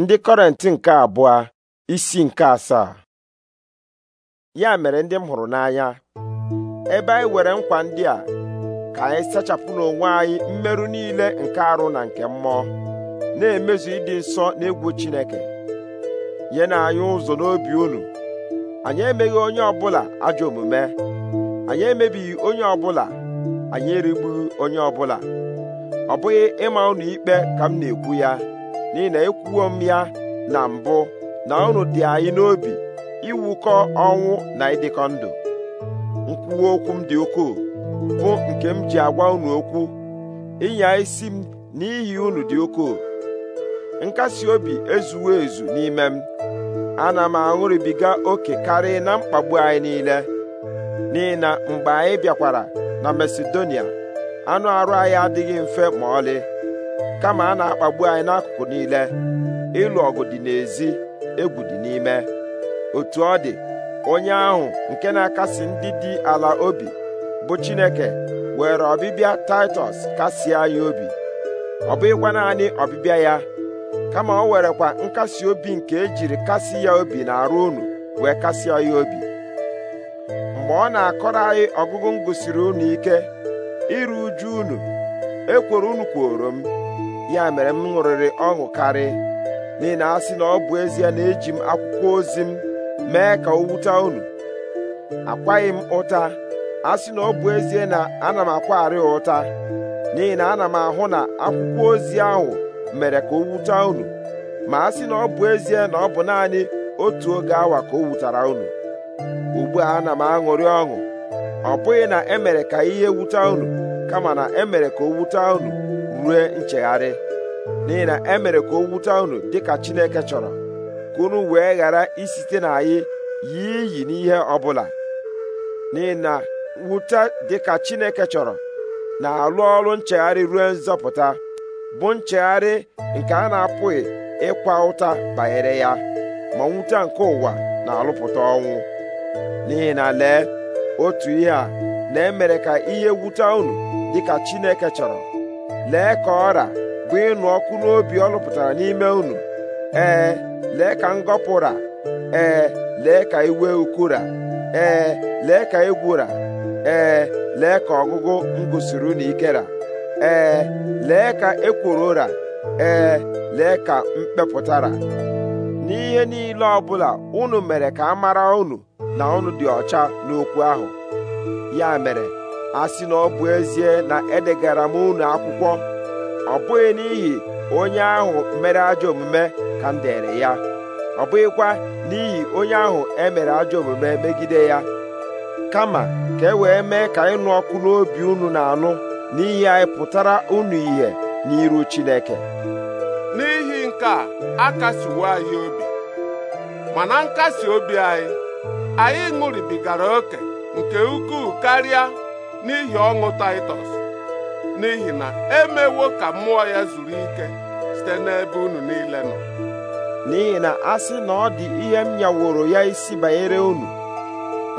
ndị kọrentị nke abụọ isi nke asaa ya mere ndị m hụrụ n'anya ebe anyị were nkwa ndị a ka anyị sachapụ n'onwe anyị mmerụ niile nke arụ na nke mmụọ na-emezu ịdị nsọ egwu Chineke nye na anyị ụzọ n'obi unu anyị emeghị onye ọbụla ajọ omume anyị emebighị onye ọbụla anyị erigbughị onye ọbụla ọ bụghị ịma unu ikpe ka m na-ekwu ya n'ihi na m ya na mbụ na unu dị anyị n'obi iwukọ ọnwụ na ịdịkọ ndụ nkwuwe okwu m dị ukwuu bụ nke m ji agwa unu okwu ịnya isi m n'ihi unu dị ukwuu nkasi obi ezuwo ezu n'ime m ana m aṅụrịbiga oke karịa na mkpagbu anyị niile n'ihi na mgbe anyị bịakwara na Masedonia anụ arụ anyị adịghị mfe ma ọlị kama a na-akpagbu anyị n'akụkụ niile ịlụ ọgụ dị n'ezi egwu dị n'ime otu ọ dị onye ahụ nke na-akasi ndị dị ala obi bụ Chineke were ọbịbịa Taịtọs kasie anyị obi ọ bụghịkwa naanị ọbịbịa ya kama o werekwa nkasi obi nke ejiri kasi ya obi na-arụ unu wee kasị ya obi mgbe ọ na-akọrọ anyị ọgụgụ m gụsiri unu ike iru uju unu ekworo unu kworo m ya mere m ṅụrịrị ọṅụ karị n'ihi na asị na ọ bụ ezie na eji m akwụkwọ ozi m mee ka o wute unu akwaghị m ụta asị na ọ bụ ezie na ana m akwagharị ụta n'ihi na ana m ahụ na akwụkwọ ozi ahụ mere ka o wute unu ma asị na ọ bụ ezie na ọ bụ naanị otu oge awa ka o wutara unu ugbu a ana m aṅụrị ọṅụ ọ bụghị na emere ka ihe wute unu kama na emere ka o wute unu rue nchegharị n'ihi na e mere ka o wute unu dịka Chineke chọrọ ka unu wee ghara isite na anyị yie iyi n'ihe ọbụla n'ihi na wute dịka Chineke chọrọ na-alụ ọrụ nchegharị ruo nzọpụta bụ nchegharị nke a na-apụghị ịkwa ụta banyere ya ma nwute nke ụwa na-alụpụta ọnwụ n'ihi na lee otu ihe a na-emere ka ihe wute unu dịka Chineke chọrọ lee ka ọra bụ ịnụ ọkụ n'obi ọ lụpụtara n'ime unu ee lee ka ngọpụra ee lee ka iwe ukura ee lee ka egwura ee lee ka ọgụgụ ngụsiri unu ikera ee lee ka ekworo ụra ee lee ka mkpepụtara n'ihe niile ọbụla unu mere ka a mara unu na unu dị ọcha n'okwu ahụ ya mere a na ọ bụ ezie na edegara m unu akwụkwọ ọ bụghị n'ihi onye ahụ mere ajọ omume ka m dere ya ọ bụghịkwa n'ihi onye ahụ emere ajọ omume megide ya kama ka e wee mee ka ịnụ ọkụ n'obi unu na-anụ n'ihi anyị pụtara unu ihe n'iru Chineke n'ihi nke a akasiwo anyị obi mana nkasi obi anyị anyị ṅụribigara oke nke ukwuu karịa n'ihi ọṅụ Taịtọs n'ihi na emewo ka mmụọ ya zuru ike site n'ebe unu niile nọ n'ihi na a sị na ọ dị ihe m nyaworo ya isi banyere unu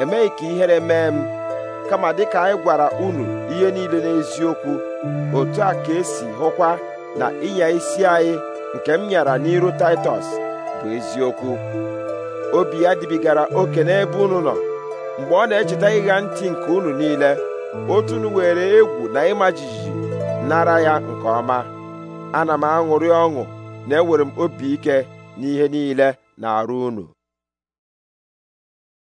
emeghị ka ihere mee m kama dịka anyị gwara unu ihe niile n'eziokwu otu a ka esi hụkwa na ịnya isi anyị nke m nyara n'iru Taịtọs bụ eziokwu obi ya dibigara oke n'ebe unu nọ mgbe ọ na-echeta ịga ntị nke unu niile otunu were egwu na ịma jijiji nara ya nke ọma ana m aṅụrị ọṅụ na enwere m obi ike n'ihe niile na-arụ unu